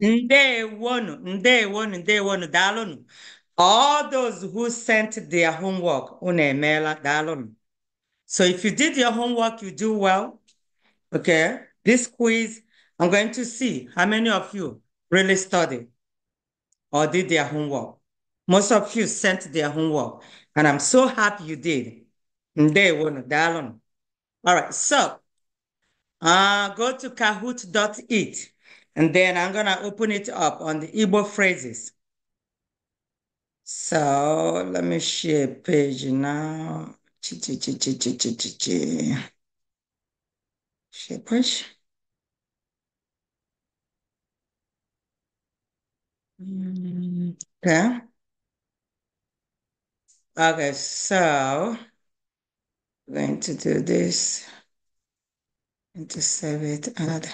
Ndewonu, ndewonu, ndewonu, dalonu. All those who sent their homework, unemela, dalonu. So if you did your homework, you do well. Okay, this quiz, I'm going to see how many of you really studied or did their homework. Most of you sent their homework, and I'm so happy you did. Ndewonu, dalonu. All right, so uh, go to kahoot.it. And then I'm going to open it up on the Igbo phrases. So let me share page now. Share page. Mm, okay. Okay, so I'm going to do this and to save it. Another.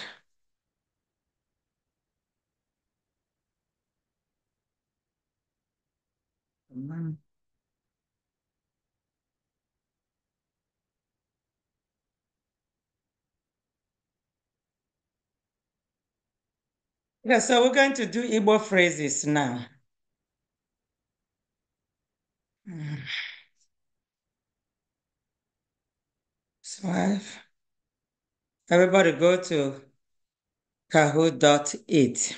Mm. Yeah, so we're going to do Igbo phrases now. So everybody go to kahoo.it.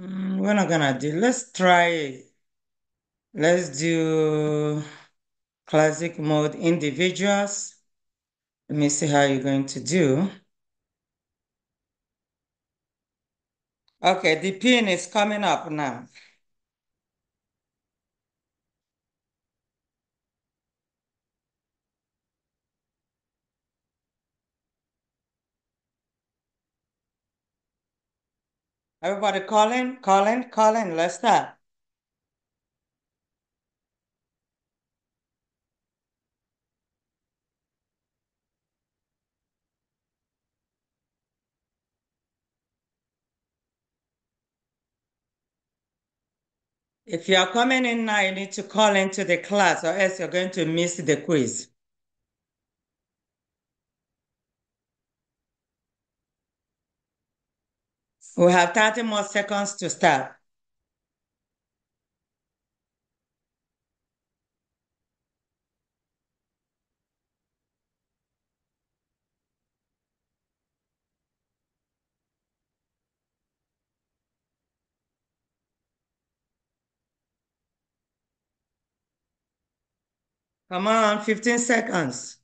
Mm, we're not gonna do, let's try, let's do classic mode individuals. Let me see how you're going to do. Okay, the pin is coming up now. Everybody call in, call in, call in. Let's start. If you are coming in now, you need to call into the class or else you're going to miss the quiz. We have 30 more seconds to start. Come on, 15 seconds.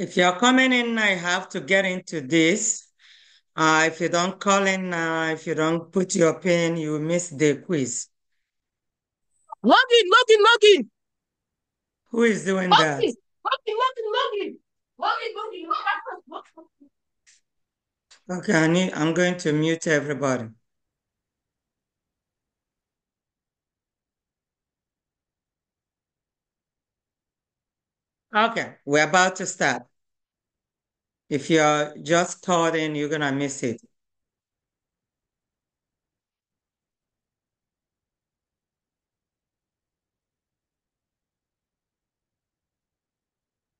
If you're coming in, I have to get into this. Uh, if you don't call in, uh, if you don't put your pin, you miss the quiz. Login, login, login. Who is doing that? Login, login, login, Okay, I need, I'm going to mute everybody. Okay, we're about to start. If you're just caught in, you're going to miss it.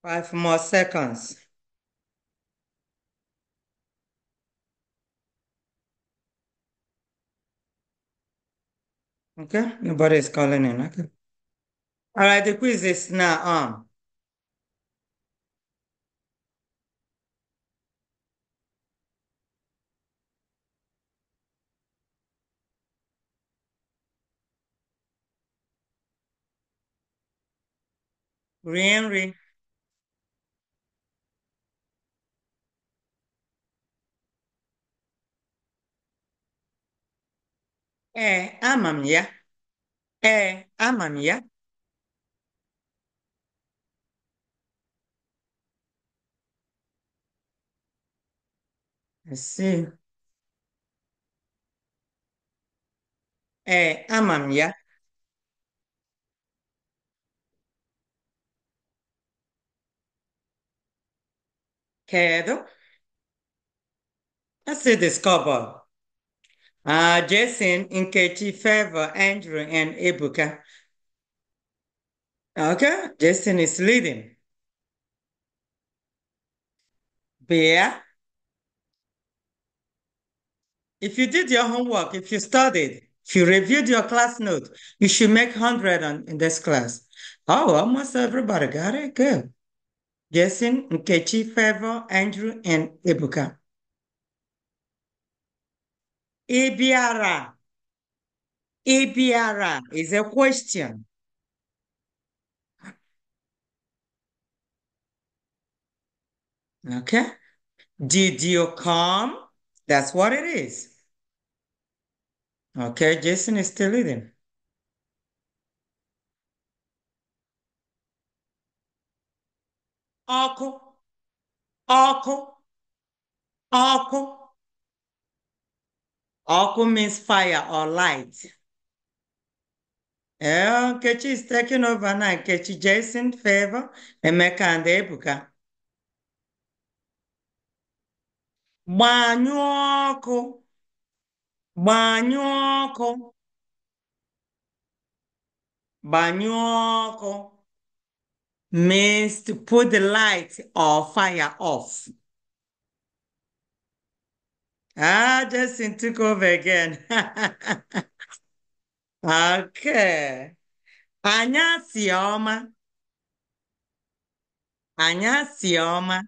Five more seconds. Okay, nobody's calling in. Okay. All right, the quiz is now on. rie nri ee ama m ya ee ama m ya I see. Ee, ama m ya. Let's see this couple. Uh, Jason, Katie, Favor, Andrew, and Ibuka. Okay, Jason is leading. Bear. If you did your homework, if you studied, if you reviewed your class note, you should make 100 on, in this class. Oh, almost everybody got it. Good. Jason, Nkechi, Favor, Andrew, and Ebuka. Ibiara. Ibiara is a question. Okay. Did you come? That's what it is. Okay, Jason is still leading. ọkụ ọkụ ọkụ ọkụ means fire or light ee eh, nkechi is taking over na nkechi jason favor emeka and ebuka gbanyụọ ọkụ gbanyụọ ọkụ gbanyụọ ọkụ means to put the light or fire off. Ah, Justin took over again. okay. Anya sioma. Anya sioma.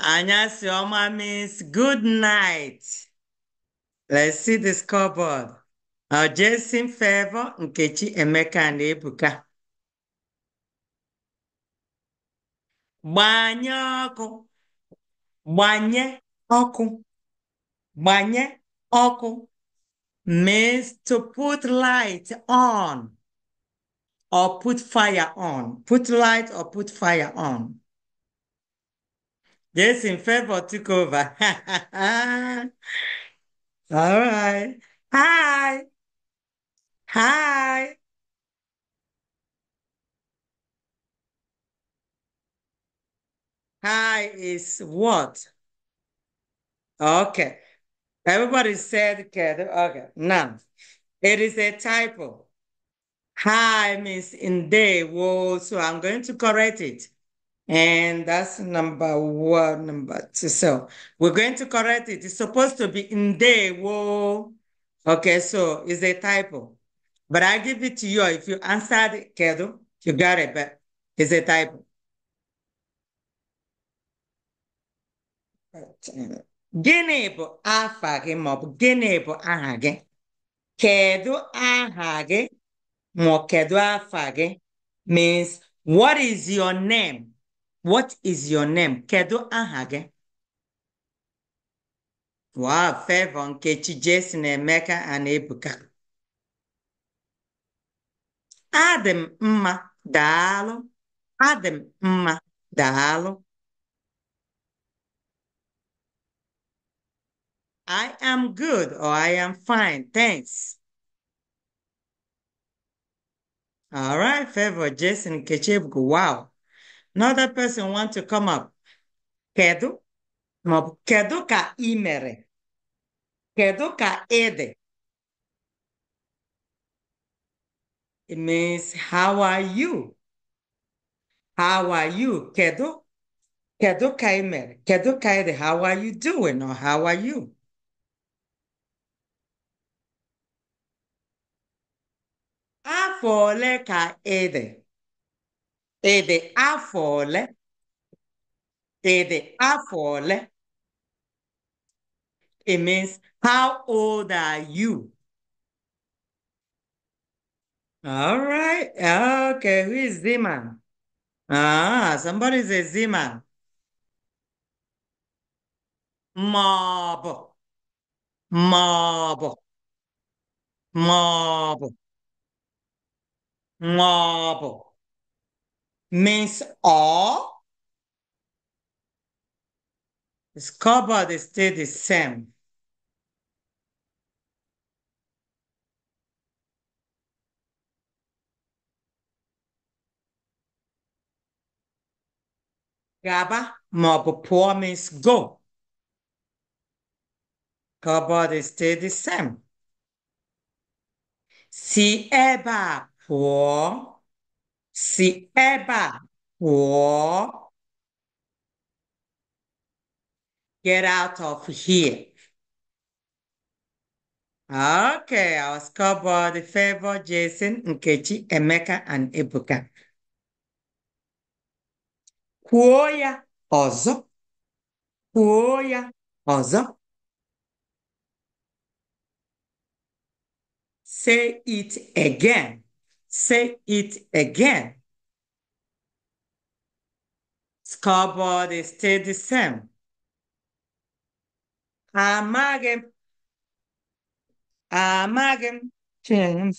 Anya sioma means good night. Let's see the scoreboard. mfe Favour Nkechi Emeka na Ebuka gbanye ọkụ gbanye ọkụ gbanye ọkụ means to put light on or put fire on put light or put fire on Jason Favour took over all right hi Hi. Hi is what? Okay. Everybody said together. Okay. Now, it is a typo. Hi means in day. Whoa. So I'm going to correct it. And that's number one, number two. So we're going to correct it. It's supposed to be in day. Whoa. Okay. So it's a typo. But I give it to you. If you answered Kedu, you got it, but it's a typo. Gịnị bụ afa gị maọbụ gịnị bụ aha gị? Kedu aha gị kedu afa gị means what is your name? What is your name? Kedu aha gị? Wow, Favour Nkechi, ne meka anebuka. Ebuka. Adam, ma, dalo. Adam, ma, dalo. I am good or I am fine, thanks. All right, favor Jason Kechebuku. Wow. Another person want to come up. Kedu? Kedu ka imere? Kedu ka ede? It means, how are you? How are you? Kedo? Kedo kaimer. Kedo kaide. How are you doing? Or how are you? Afọ ka ede, ede afole, ede afọ afọ It means, how old are you? All right. Okay. Who is Zima? Ah, somebody say Zima. Mob. Mob. Mob. Mob. Means all. The they stay the same. Gaba mob poor means go. Cupboard stay the same. Si eba poor. Si eba poor. Get out of here. Okay, our scoreboard favor Jason, Nkechi, Emeka, and Ibuka kuoya ozo, kuoya ozo. Say it again. Say it again. Scoreboard stay the same. Amagen.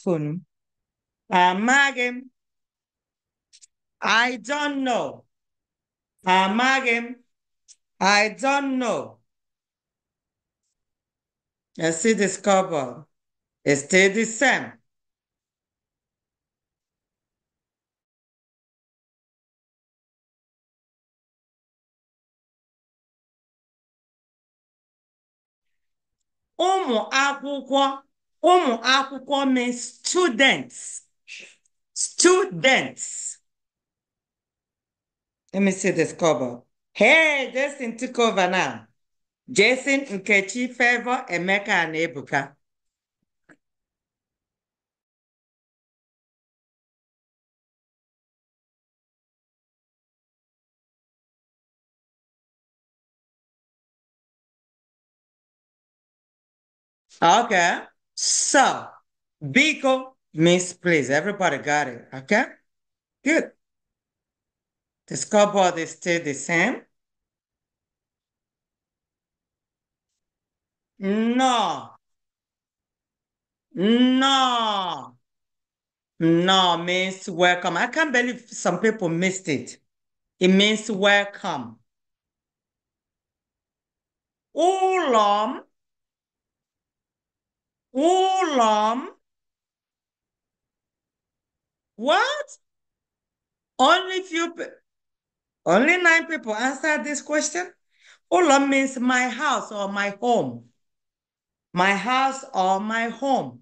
phone. Amagem. I don't know. Amaghị m. I don't know. I see discover cupboard. It's still the same. ụmụ akwụkwọ ụmụ akwụkwọ means students students Let me see the scoreboard. Hey, Jason took over now. Jason, Nkechi, Favor, Emeka, and Ebuka. Okay. So, Biko means please. Everybody got it. Okay. Good. The scoreboard is still the same. No. No. No means welcome. I can't believe some people missed it. It means welcome. Ulam. Ulam. What? Only few only nine people answered this question. Ulam means my house or my home. My house or my home.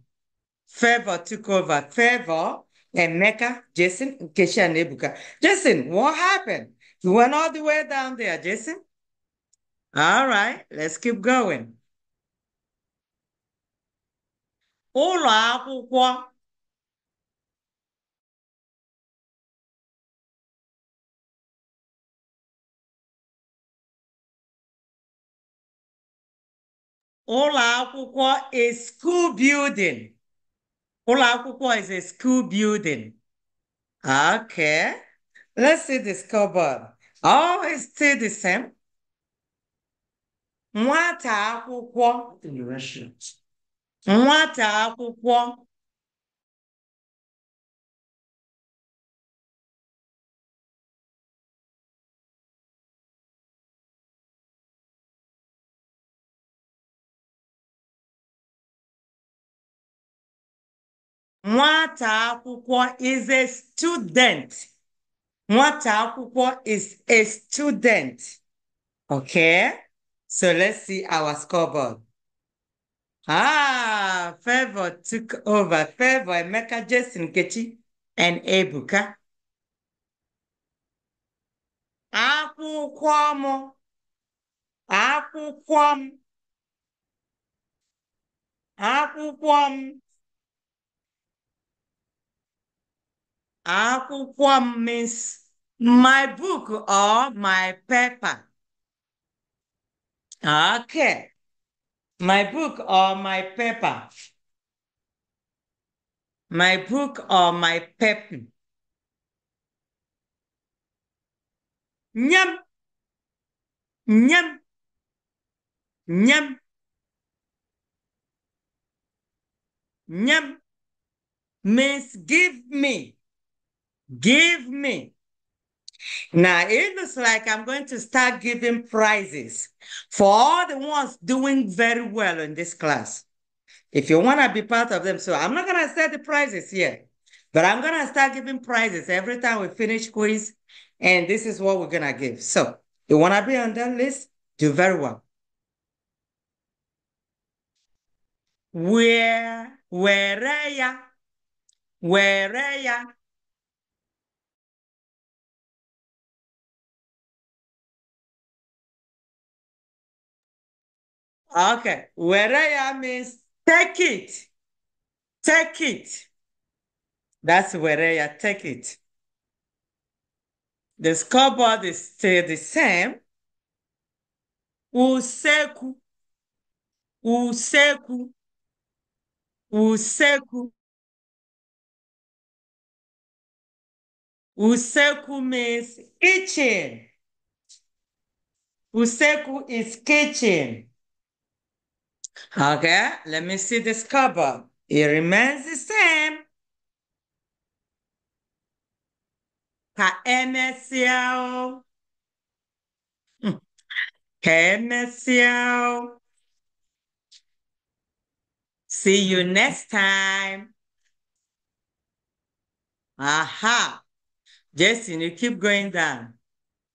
Favor took over. Favor and Mecca, Jason, and Kesha, nebuka. Jason, what happened? You went all the way down there, Jason. All right, let's keep going. Ụlọ ụlọ akwụkwọ is school building ụlọ akwụkwọ is a school building okay let's see the scoreboard oh it's still the same nwata akwụkwọ nwata akwụkwọ Nwata akwụkwọ is a student. Nwata akwụkwọ is a student. Okay? So let's see our scoreboard. Ah, Favor took over. Favor, Emeka, Jason, Kechi, and Ebuka. Akwụkwọ mụ. Akwụkwọ m. Akwụkwọ m. Akwụkwọ means my book or my paper. Okay. My book or my paper. My book or my paper. Nyam. Nyam. Nyam. Nyam means give me. Give me. Now it looks like I'm going to start giving prizes for all the ones doing very well in this class. If you want to be part of them, so I'm not going to set the prizes here, but I'm going to start giving prizes every time we finish quiz. And this is what we're going to give. So you want to be on that list? Do very well. Where, where, where, where, Okay. where I am is take it. Take it. That's where Weraya, take it. The scoreboard is still the same. Useku. Useku. Useku. Useku means kitchen. Useku is kitchen. Okay, let me see this cover. It remains the same. KMSO, KMSO. Hmm. See you next time. Aha. Jason, you keep going down.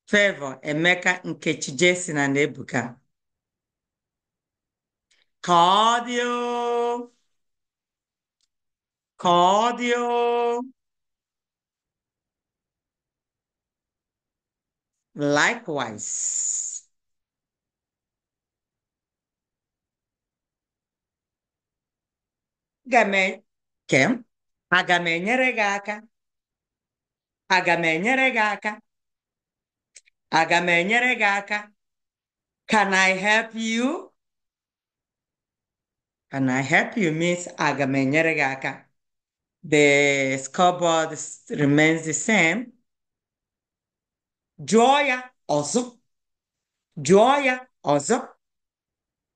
Favor, Emeka, Nkechi, Jason, and Ebuka cardio, cardio, likewise. Game, Kim, aga m enyere gị aka. Aga m enyere gị aka. Aga m Can I help you? Can I help you, Miss Agamenyeregaka? The scoreboard remains the same. Joya Ozo, Joya also.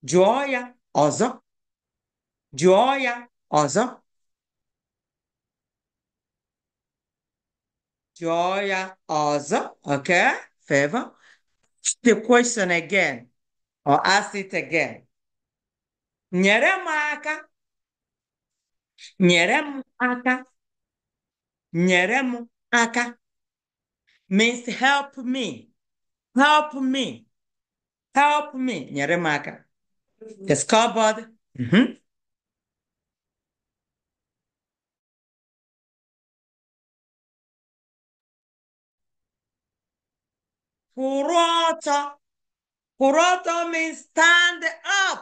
Joya also. Joya also. Joya also. Okay, favor. The question again or ask it again. nyere m aka nyere m aka nyere m aka means help me help me help me nyere m aka the scoreboard mm -hmm. kwụrụ ọtọ kwụrụ ọtọ means stand up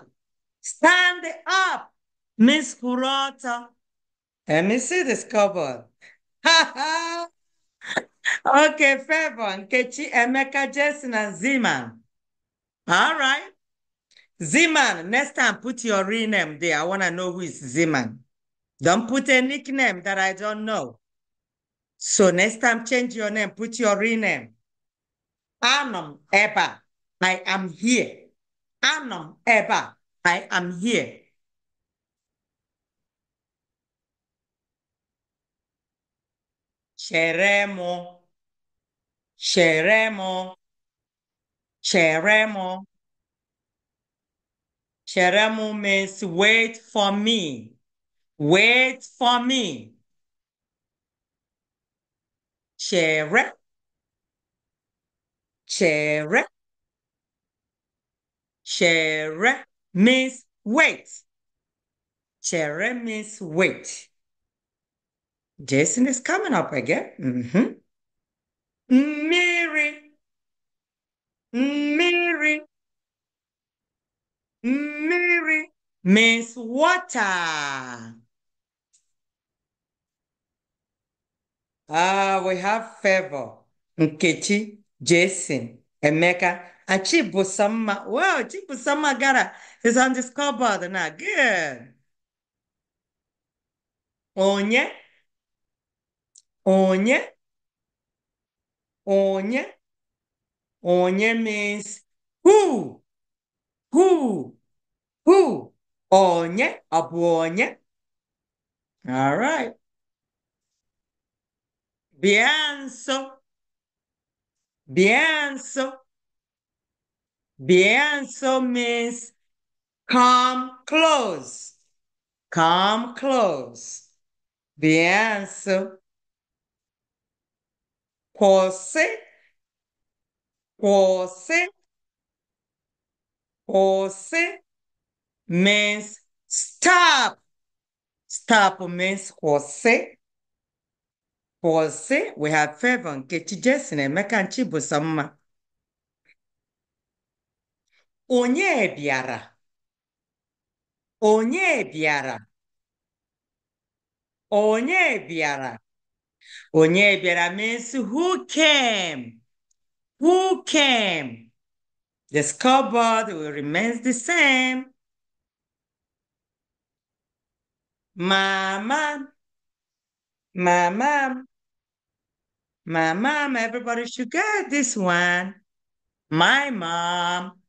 Stand up, Miss Kurata. Let me see this cover. okay, Fevon, Kechi, Emeka, Jason, and Zeman. All right. Zeman, next time put your real name there. I want to know who is Zeman. Don't put a nickname that I don't know. So next time change your name, put your real name. Anum Eba. I am here. Anum Eba. I am here. Cheremo, Cheremo, Cheremo, Cheremo. means wait for me, wait for me. Chere, chere, chere means wait. Cherry means wait. Jason is coming up again. Mm-hmm. Mary. Mary. Mary means water. Ah, we have favor. Nkechi, Jason, Emeka, Achibu Sama. Wow, Achibu Sama Gara is on the scoreboard now. Good. Onye. Onye. Onye. Onye means who? Who? Who? Onye. Abu onye. All right. Bianso. Bianso. The answer means come close. Come close. The answer. Você, você, means stop. Stop means você. Você, we have favor nke chi jesine meka nchi bụ onye bịara onye bịara onye bịara onye bịara means who came who came the scoreboard will remain the same mama mama my mom, everybody should get this one. My mom.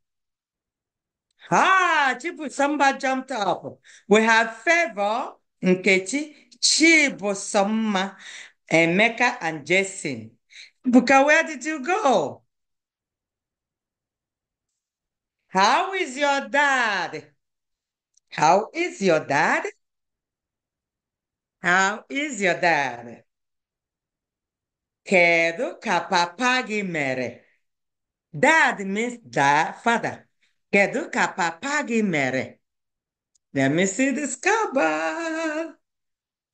Ah, Chibusamma jumped up. We have Favor, Nkechi, Chibusamma, Emeka, eh, and Jason. Buka, where did you go? How is your dad? How is your dad? How is your dad? Kedu ka papa gị mere? Dad means dad, father. Kedu ka papa gị mere? Let me see this cover.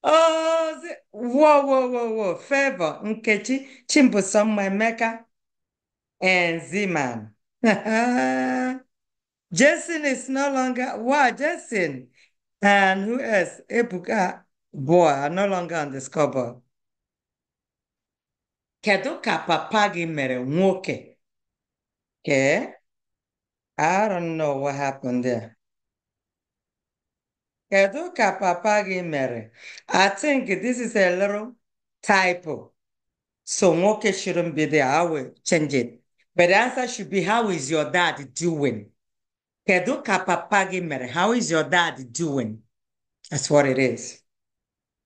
Oh, whoa, whoa, whoa, whoa. Favor, Nkechi, Chimbusom, Emeka, and Zeman. Jason is no longer, wow, Jason. And who else? Ebuka, boy, are no longer on the scoreboard. Kedu ka papa gị mere nwoke? Okay. I don't know what happened there. Kedu ka papa gị mere? I think this is a little typo. So nwoke shouldn't be there. I will change it. But the answer should be, how is your dad doing? Kedu ka papa gị mere? How is your dad doing? That's what it is.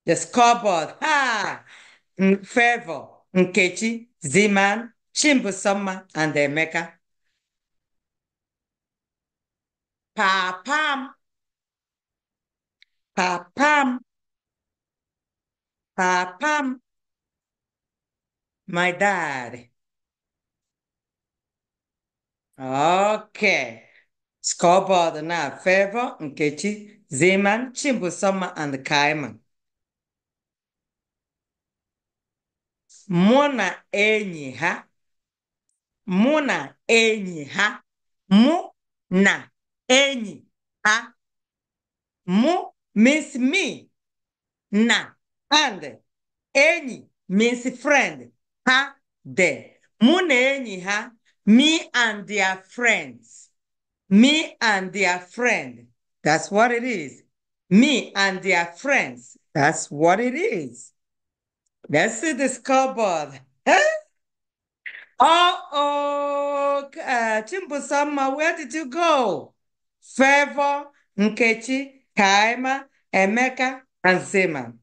The scoreboard. Ha! Favor, Nkechi, Zeman, Chimbusoma, and Emeka. papa m papa m papa m my dad Ok, scoreboard na Favor, Nkechi, Zeman, Chimbusoma, and Kaiman. Mụ na enyi ha. Mụ na enyi ha. Mụ na Any, a, mu means me. Na, and. any means friend. Ha, de. Mu na any, ha, me and their friends. Me and their friend. That's what it is. Me and their friends. That's what it is. Let's see the scoreboard. Uh-oh, uh, where did you go? Favour, Nkechi, Kaima, Emeka, and Seman.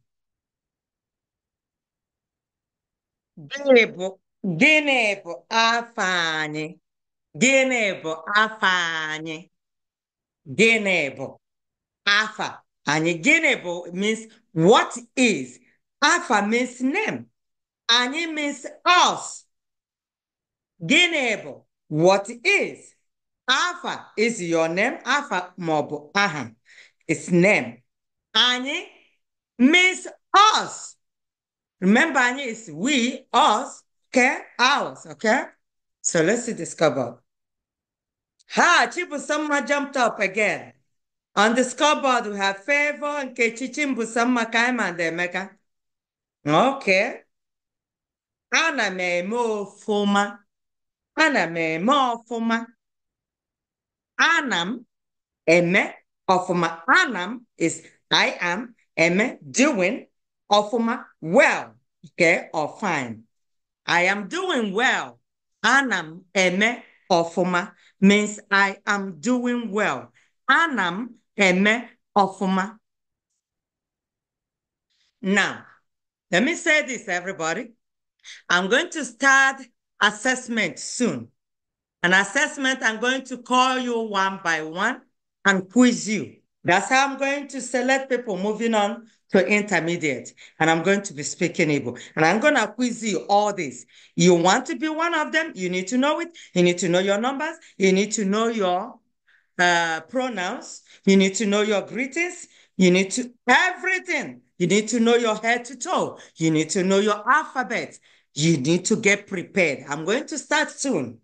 Gịnị bụ gịnị bụ afa anyị? Gịnị bụ afa anyị? Gịnị bụ afa anyị? Gịnị bụ means what is? Afa means name. Anyị means us. Gịnị bụ what is? Alpha is your name. Alpha maọbụ aha. It's name. Any means us. Remember any is we, us, okay? Ours, okay? So let's discover. Ha, Chibusamma jumped up again. On the scoreboard, we have Favor, and Nkechichi, Mbusamma, Kaima, and Emeka. Okay. Ana me mo ọfụma. Ana me mo foma anam, eme, ofuma anam is I am, eme, doing, ofuma well, okay, or fine. I am doing well. Anam, eme, ofuma means I am doing well. Anam, eme, ofuma. Now, let me say this, everybody. I'm going to start assessment soon an assessment, I'm going to call you one by one and quiz you. That's how I'm going to select people moving on to intermediate. And I'm going to be speaking Igbo. And I'm going to quiz you all this. You want to be one of them, you need to know it. You need to know your numbers. You need to know your uh, pronouns. You need to know your greetings. You need to, everything. You need to know your head to toe. You need to know your alphabet. You need to get prepared. I'm going to start soon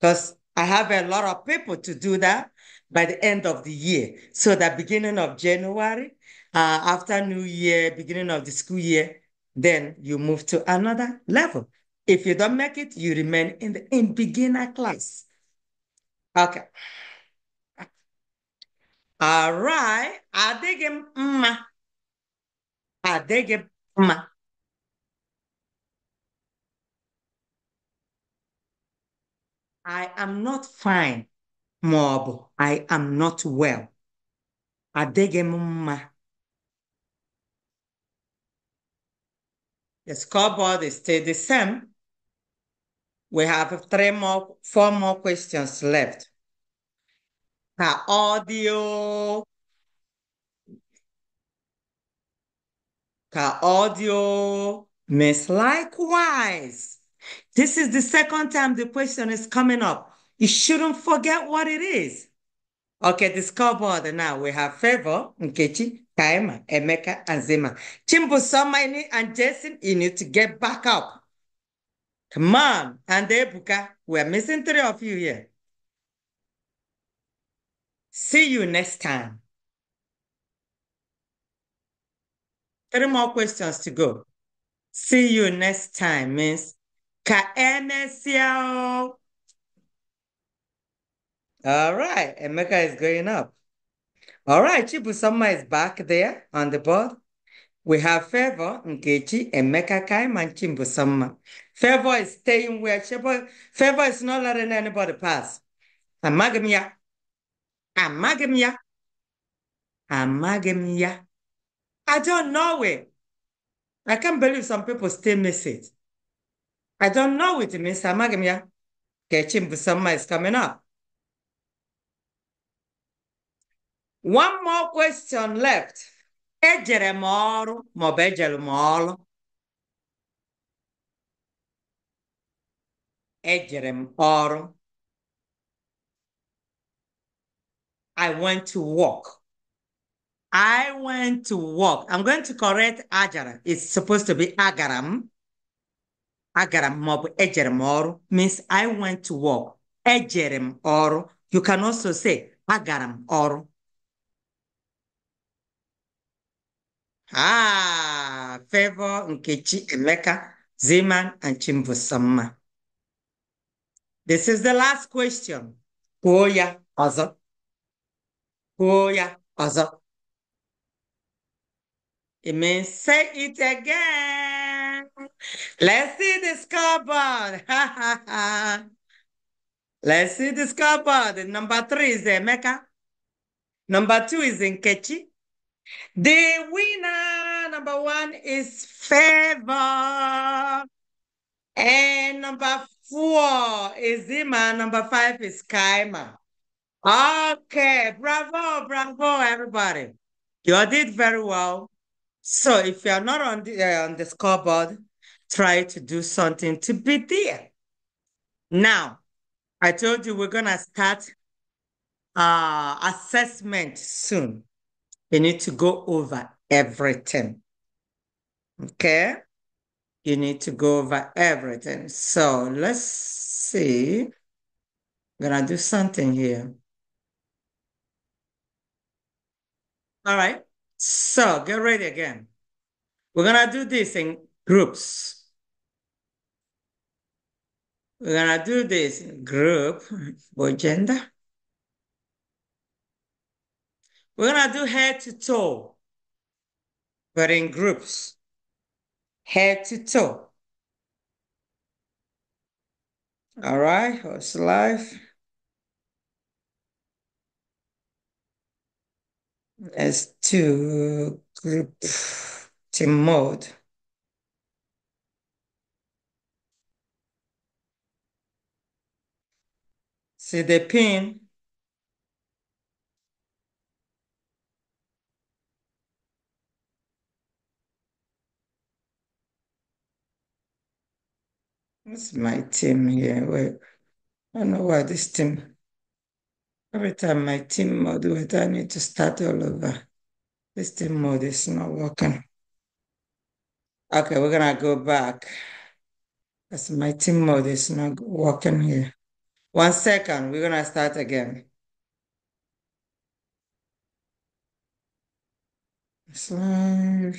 because I have a lot of people to do that by the end of the year. So the beginning of January, uh, after New Year, beginning of the school year, then you move to another level. If you don't make it, you remain in the in beginner class. Okay. All right. I dig him. I dig him. I am not fine ma I am not well. Adịghị m mma. The scoreboard is still the same. We have three more, four more questions left. Her audio. Ka audio. Miss likewise. This is the second time the question is coming up. You shouldn't forget what it is. Okay, the scoreboard now. We have Favor, Nkechi, Kaima, Emeka, and Zima. Chimbo, Somaini, and Jason, you need to get back up. Come on. And Ebuka, we're missing three of you here. See you next time. Three more questions to go. See you next time Miss. Ka All right, Emeka is going up. All right, Chibusoma is back there on the board. We have Favor, Nkechi, Emeka Kaim, and Chimbusoma. Favor is staying where Chibu, Favor is not letting anybody pass. Amagamia. Amagamia. Amagamia. I don't know it. I can't believe some people still miss it. I don't know it means Catching the Busama is coming up. One more question left. Ejere mọrụ maọbụ ejere Ejere I went to work. I went to work. I'm going to correct Ajara. It's supposed to be Agaram. Agaram m maọbụ ejere m ọrụ means I went to work ejere m ọrụ you can also say agaram m ọrụ ah Favor Nkechi Emeka Zeman and Chimbusomma this is the last question kwuo ya ọzọ kwuo ya ọzọ it means say it again Let's see the scoreboard. Let's see the scoreboard. Number three is Emeka. Number two is Nkechi. The winner, number one, is Favor. And number four is Zima. Number five is Kaima. Okay, bravo, bravo, everybody. You did very well. So if you're not on the, uh, on the scoreboard, try to do something to be there. Now, I told you we're gonna start uh, assessment soon. You need to go over everything. Okay? You need to go over everything. So let's see. I'm gonna do something here. All right. So get ready again. We're gonna do this in groups. We're gonna do this group by gender. We're gonna do head to toe, but in groups. Head to toe. All right, who's life. Let's do group team mode. See the pin? This is my team here. Wait, I don't know why this team. Every time my team mode, I need to start all over. This team mode is not working. Okay, we're gonna go back. Because my team mode is not working here. One second, we're gonna start again. Slide.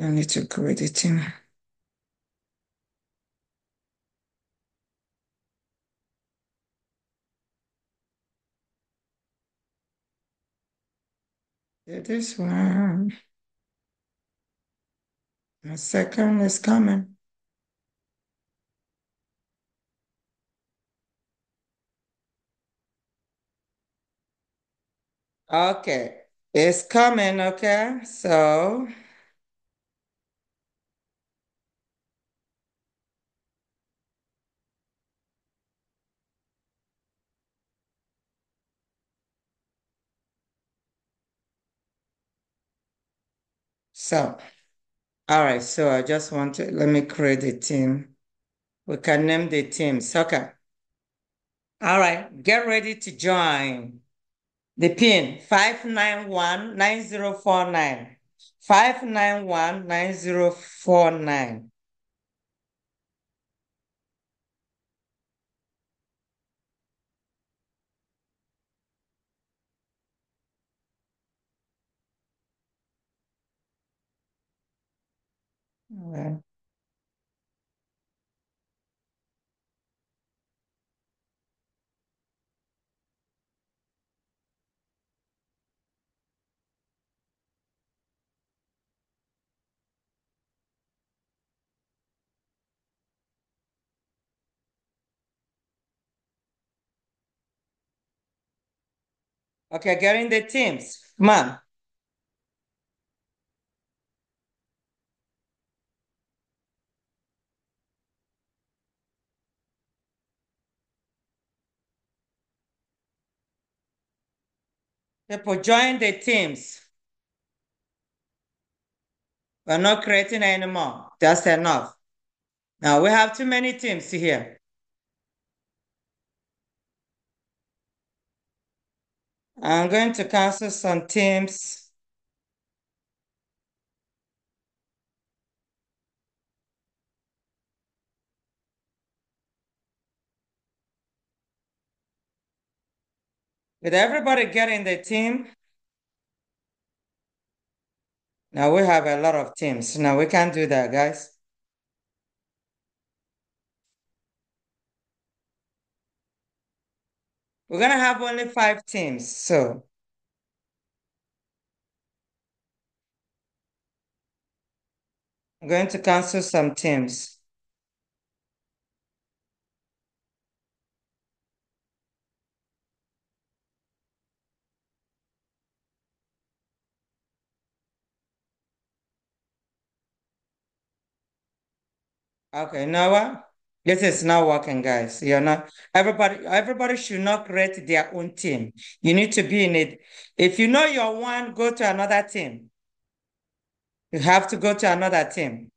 I need to create a team. this one. The second is coming. Okay, it's coming, okay? So So, all right. So I just want to, let me create a team. We can name the team soccer. All right. Get ready to join. The pin 591-9049. 591-9049. Okay. Okay, get in the teams. Come on. People join the teams. We're not creating anymore. That's enough. Now we have too many teams here. I'm going to cancel some teams. With everybody getting the team, now we have a lot of teams. Now we can't do that, guys. We're going to have only five teams. So I'm going to cancel some teams. Okay, now this is not working, guys. You're not everybody. Everybody should not create their own team. You need to be in it. If you know you're one, go to another team. You have to go to another team.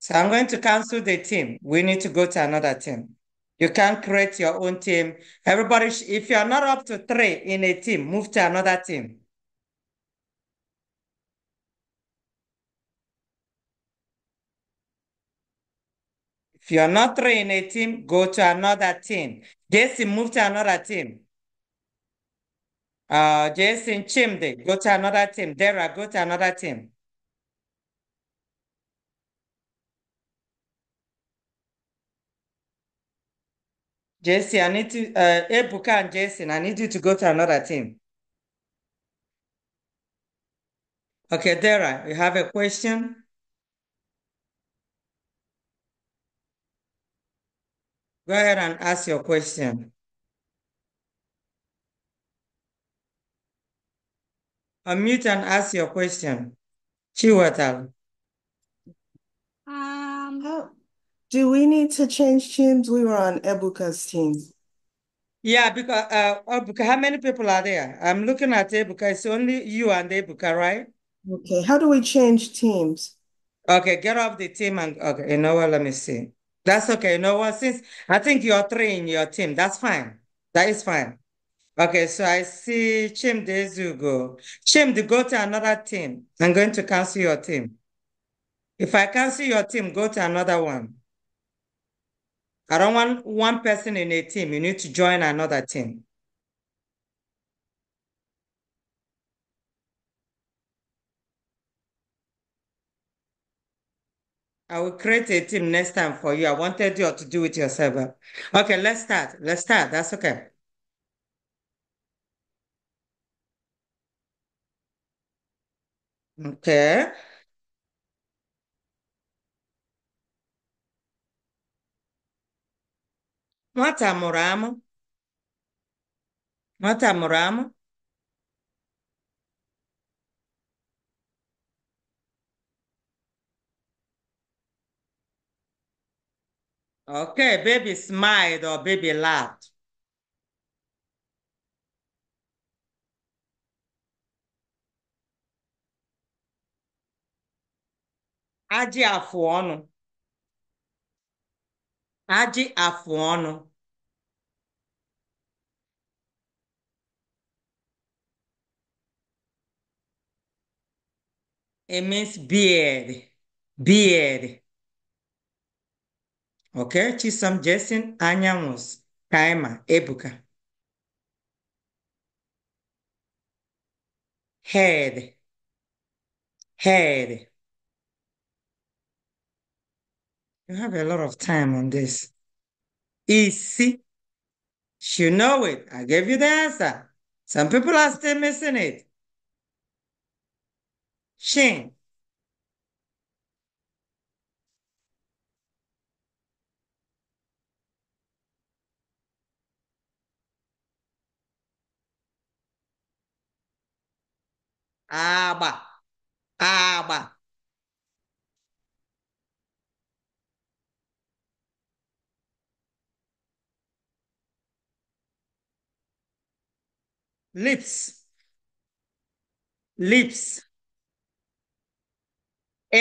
So I'm going to cancel the team. We need to go to another team. You can't create your own team. Everybody, if you're not up to three in a team, move to another team. If you're not three in a team, go to another team. Jason, move to another team. Uh, Jason Chimde, go to another team. Dara, go to another team. Jason, I need to, uh, Ebuka and Jason, I need you to go to another team. Okay, Dara, you have a question? Go ahead and ask your question. Unmute and ask your question. Chiwetal. Um, do we need to change teams? We were on Ebuka's team. Yeah, because uh, Ebuka, how many people are there? I'm looking at Ebuka. It's only you and Ebuka, right? Okay. How do we change teams? Okay, get off the team and okay. You know what? Let me see. That's okay. No, what? since I think you're three in your team, that's fine. That is fine. Okay, so I see Chim Zugo. Chimde, go to another team. I'm going to cancel your team. If I cancel your team, go to another one. I don't want one person in a team. You need to join another team. I will create a team next time for you. I wanted you to do it yourself. Okay, let's start. Let's start. That's okay. Okay. Nwata mụrụ amụ. Nwata mụrụ amụ. Okay, baby smiled or baby laughed. Ajị afụ ọnụ. Ajị It means beard, beard. Okay, Chisom Jason Anyamus Kaima Ebuka. Head. Head. You have a lot of time on this. Easy. You know it. I gave you the answer. Some people are still missing it. Shing. agba agba lips lips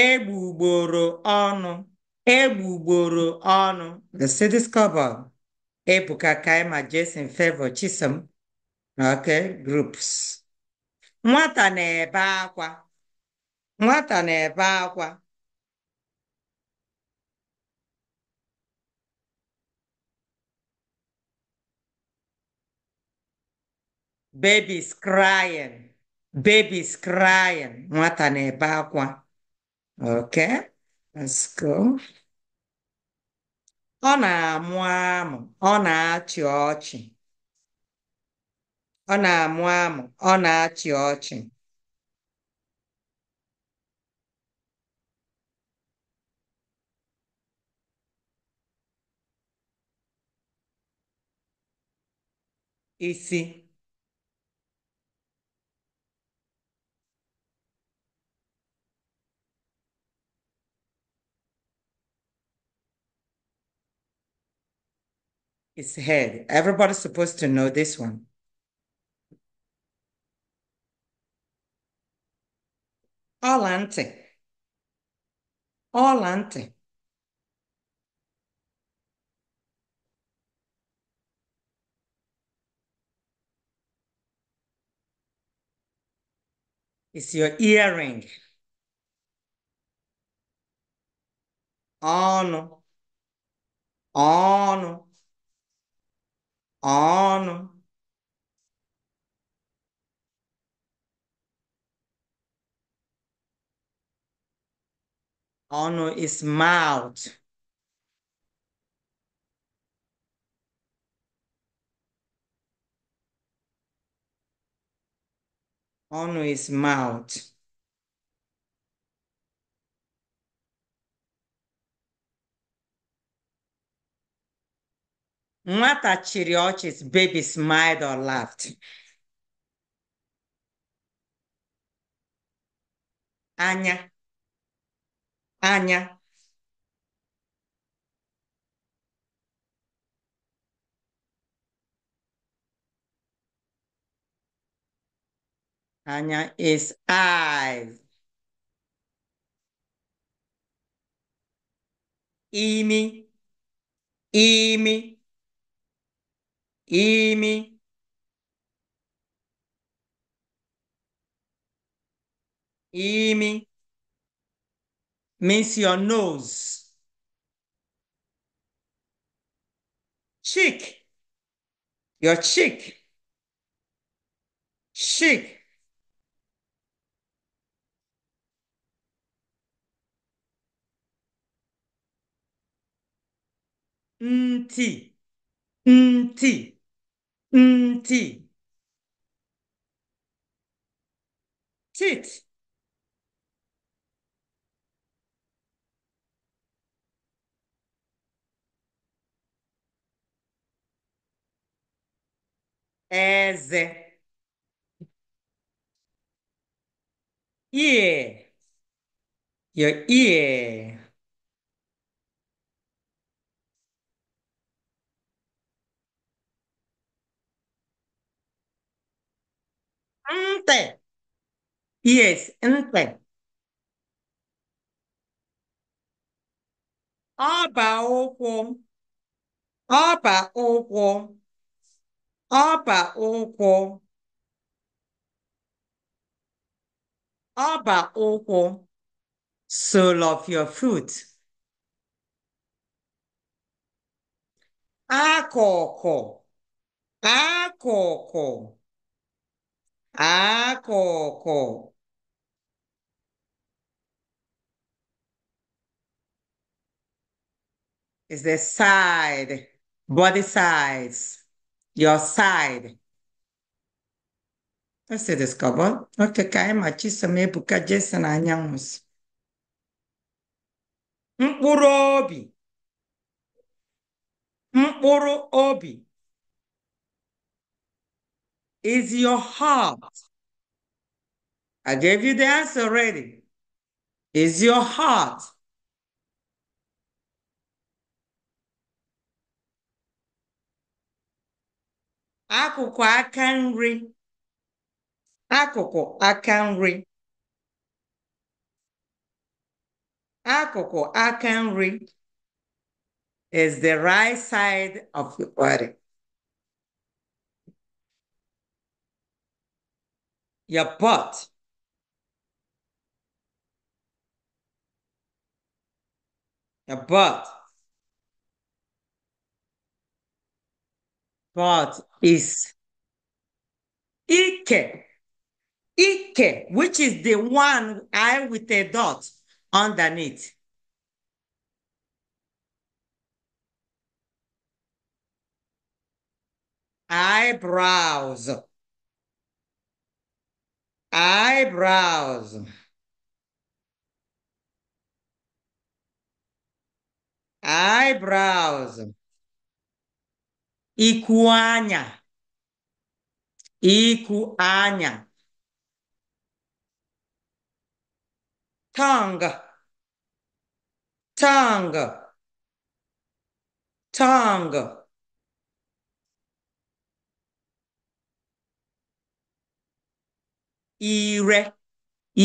egbugboro ọnụ egbugboro ọnụ the city's cover ebuka kaima jason favor chisom okay groups Nwata na-ebe akwa nwata na-ebe akwa baby's crying baby's crying nwata na-ebe akwa okay let's go ọ na-amụ amụ ọ na-achị ọchị Ọ na-amụ amụ, ọ na-achị ọchị. Isi His head. Everybody's supposed to know this one. Olante. Olante. It's your earring. On. On. On. on is mouth. On is mouth. Nwata chịrị baby smiled or laughed. Anya. Anya. Anya is I, Imi, Imi, Imi. Imi means your nose. Cheek, your cheek. Cheek. Nti, nti, nti. as, ear, your ear. Ante. Yes, ante. Aba ụkwụ. aba ụkwụ ọba ụkwụ ọba ụkwụ sole of your foot akụkụ akụkụ akụkụ is the side body sides your side. Ese discovered. Okay, ka anyị ma Chisom Ebuka Jason Anyanwụ si. Mkpụrụ obi. Mkpụrụ obi. Is your heart. I gave you the answer already. Is your heart. akụkụ aka nri akụkụ aka nri akụkụ aka nri is the right side of the body your butt your butt butt is Ike. Ike, which is the one I with a dot underneath. Eyebrows. Eyebrows. Eyebrows. ikwu anya ikwu anya tongue tongue tongue ire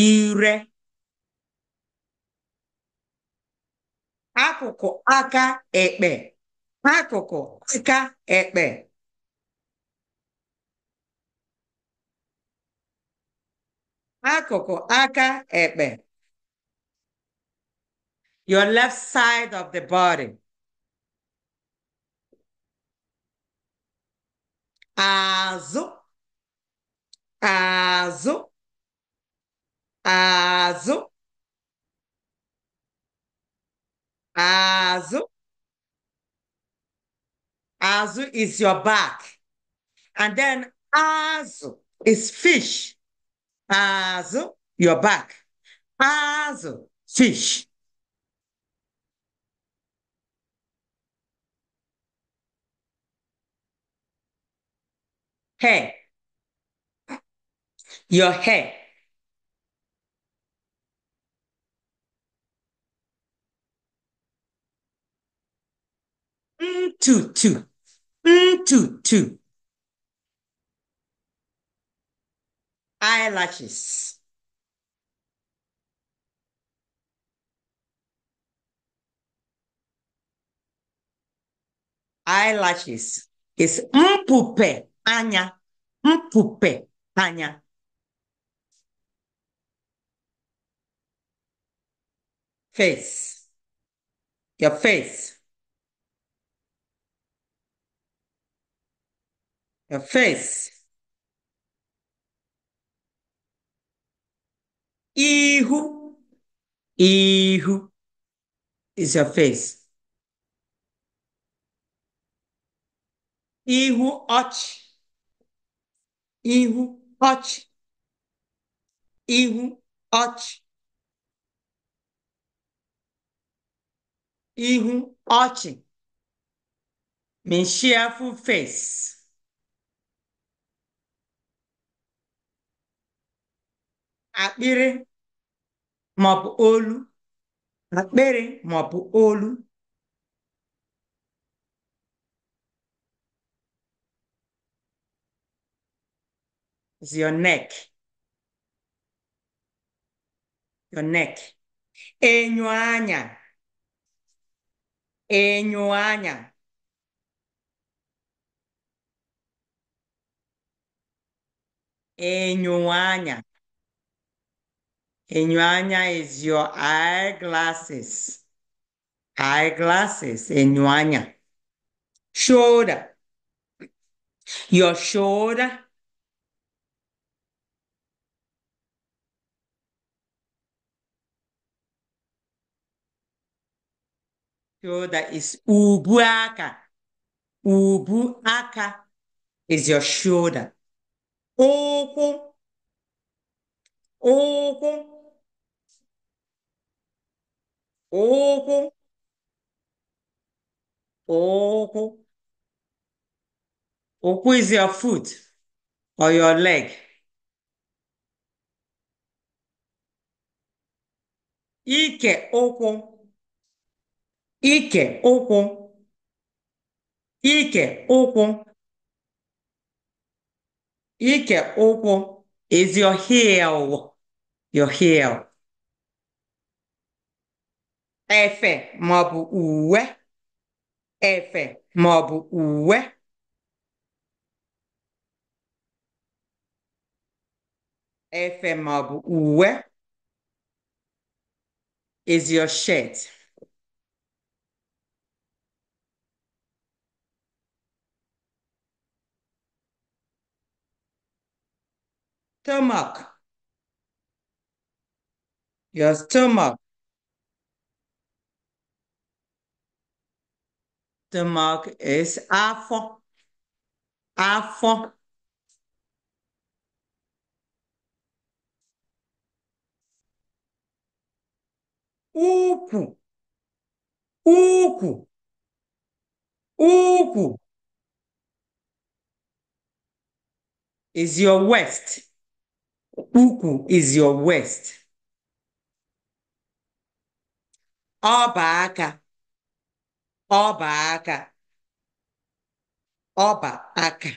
ire akụkụ aka ekpe akụkụ aka ekpe akụkụ aka ekpe your left side of the body azụ azụ azụ azụ Azu is your back. And then Azu is fish. Azu, your back. Azu, fish. Hair. Your hair. Mm, two, two. Two two eyelashes eyelashes is mpupe anya mpupe anya face your face Já fez? Irro, irro. E já fez? Irro, ote. Irro, ote. Irro, ote. Irro, ote. Menchiafo fez. akpịrị maọbụ olu akpịrị maọbụ olu is your neck your neck enyo anya enyo anya enyo anya Enyuanya is your eyeglasses. Eyeglasses, enyuanya. Shoulder. Your shoulder. Shoulder is ubuaka. Ubuaka is your shoulder. Oku. Oku. ụkwụ ụkwụ okwu is your foot or your leg ike ụkwụ ike ụkwụ ike ụkwụ ike ụkwụ is your heel your heel efe maọbụ uwe efe maọbụ uwe efe maọbụ uwe is your shirt stomach your stomach The mark is afọ. Afọ. Uku Uku Uku Is your west. Uku is your west. Abaka. aka. ọba aka ọba aka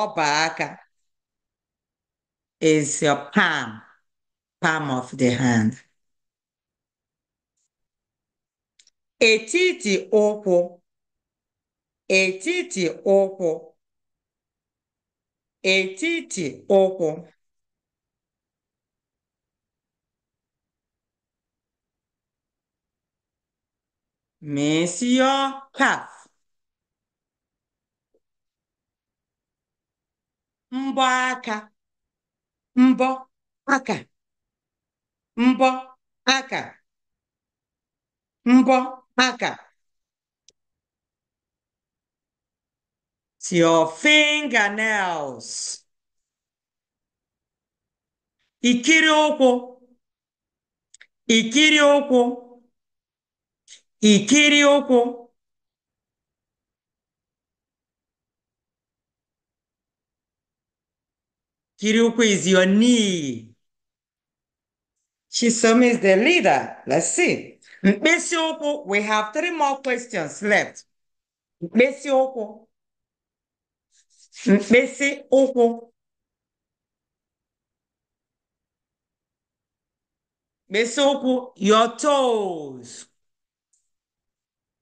ọba aka is your palm palm of the hand etiti ụkwụ etiti ụkwụ etiti ụkwụ مثل یا mbọ aka mbọ aka mbọ aka mbọ aka it's your fingernails ikiri ụkwụ ikiri ụkwụ Ikirioko. Kirioko is your knee. Chisome is the leader. Let's see. Mkpesioko, we have three more questions left. Mkpesioko. Mkpesioko. Mkpesioko, your toes.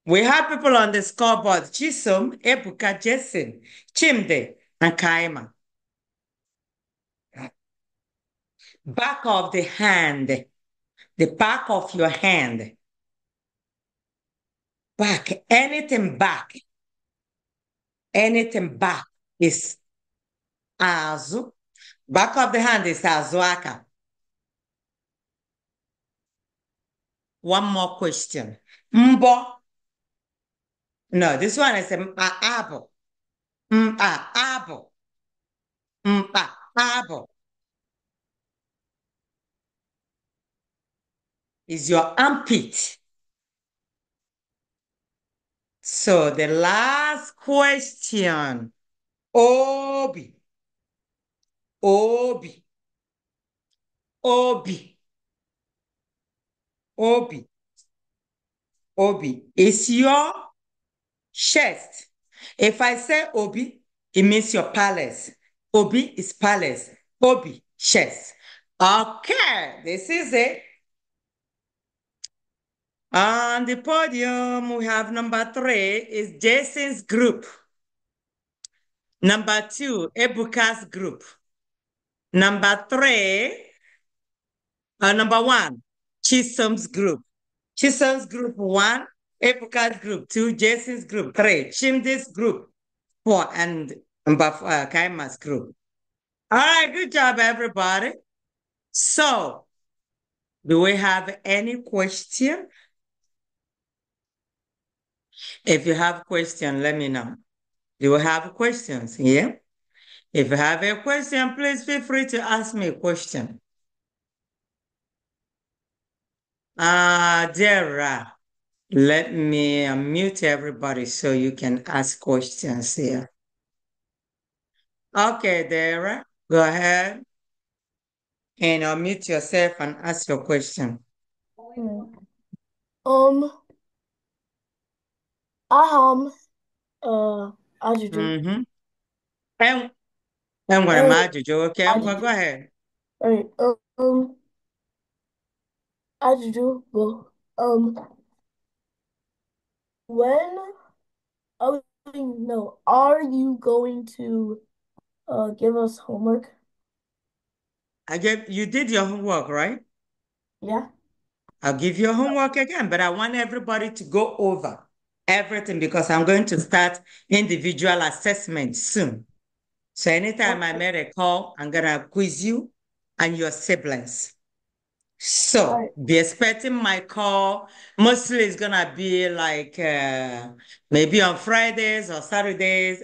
We have people on the scoreboard, Chisom, Ebuka, Jason, Chimde, and Kaima. Back of the hand, the back of your hand. Back, anything back. Anything back is Azu. Back of the hand is Azuaka. One more question. Mbo no, this one is apple, Mpaabo. apple. Is your armpit. So the last question. Obi. Obi. Obi. Obi. Obi. Is your chest. If I say obi, it means your palace. Obi is palace. Obi, chest. Okay, this is it. On the podium, we have number three is Jason's group. Number two, Ebuka's group. Number three, uh, number one, Chisholm's group. Chisholm's group one, Epukat group 2, Jason's group 3, Chimdis group 4, and Mbaf- uh, Kaima's group. All right, good job, everybody. So, do we have any question? If you have question, let me know. Do you have questions Yeah? If you have a question, please feel free to ask me a question. Ah, uh, Dara. Let me unmute everybody so you can ask questions here. Okay, Dara, go ahead and unmute yourself and ask your question. Um, aham, uh, ajuju. Mm-hmm. And, and what am I, um, ajuju? Okay, ajuju. go ahead. All right, um, ajuju, well, um, when oh no are you going to uh give us homework i gave you did your homework right yeah i'll give you homework again but i want everybody to go over everything because i'm going to start individual assessment soon so anytime okay. i make a call i'm gonna quiz you and your siblings so right. be expecting my call. Mostly it's gonna be like uh, maybe on Fridays or Saturdays,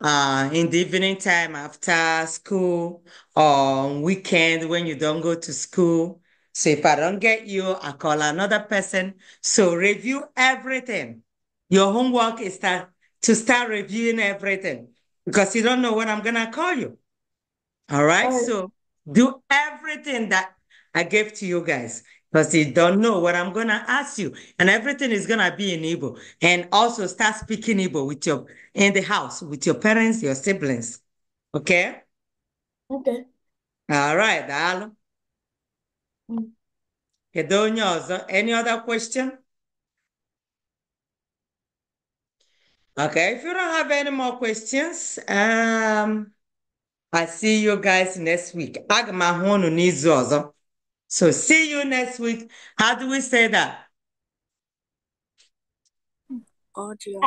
uh, in the evening time after school or weekend when you don't go to school. So if I don't get you, I call another person. So review everything. Your homework is start to start reviewing everything because you don't know when I'm gonna call you. All right. All right. So do everything that I gave to you guys because you don't know what I'm gonna ask you, and everything is gonna be in Igbo. And also start speaking Igbo with your in the house with your parents, your siblings. Okay. Okay. All right, Daalụ. Mm. Any other question? Okay, if you don't have any more questions, um, I see you guys next week. Agma m ahụ unu so see you next week. How do we say that? Cordial.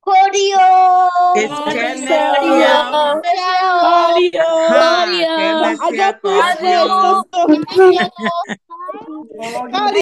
Cordial. Cordial. Cordial. Cordial.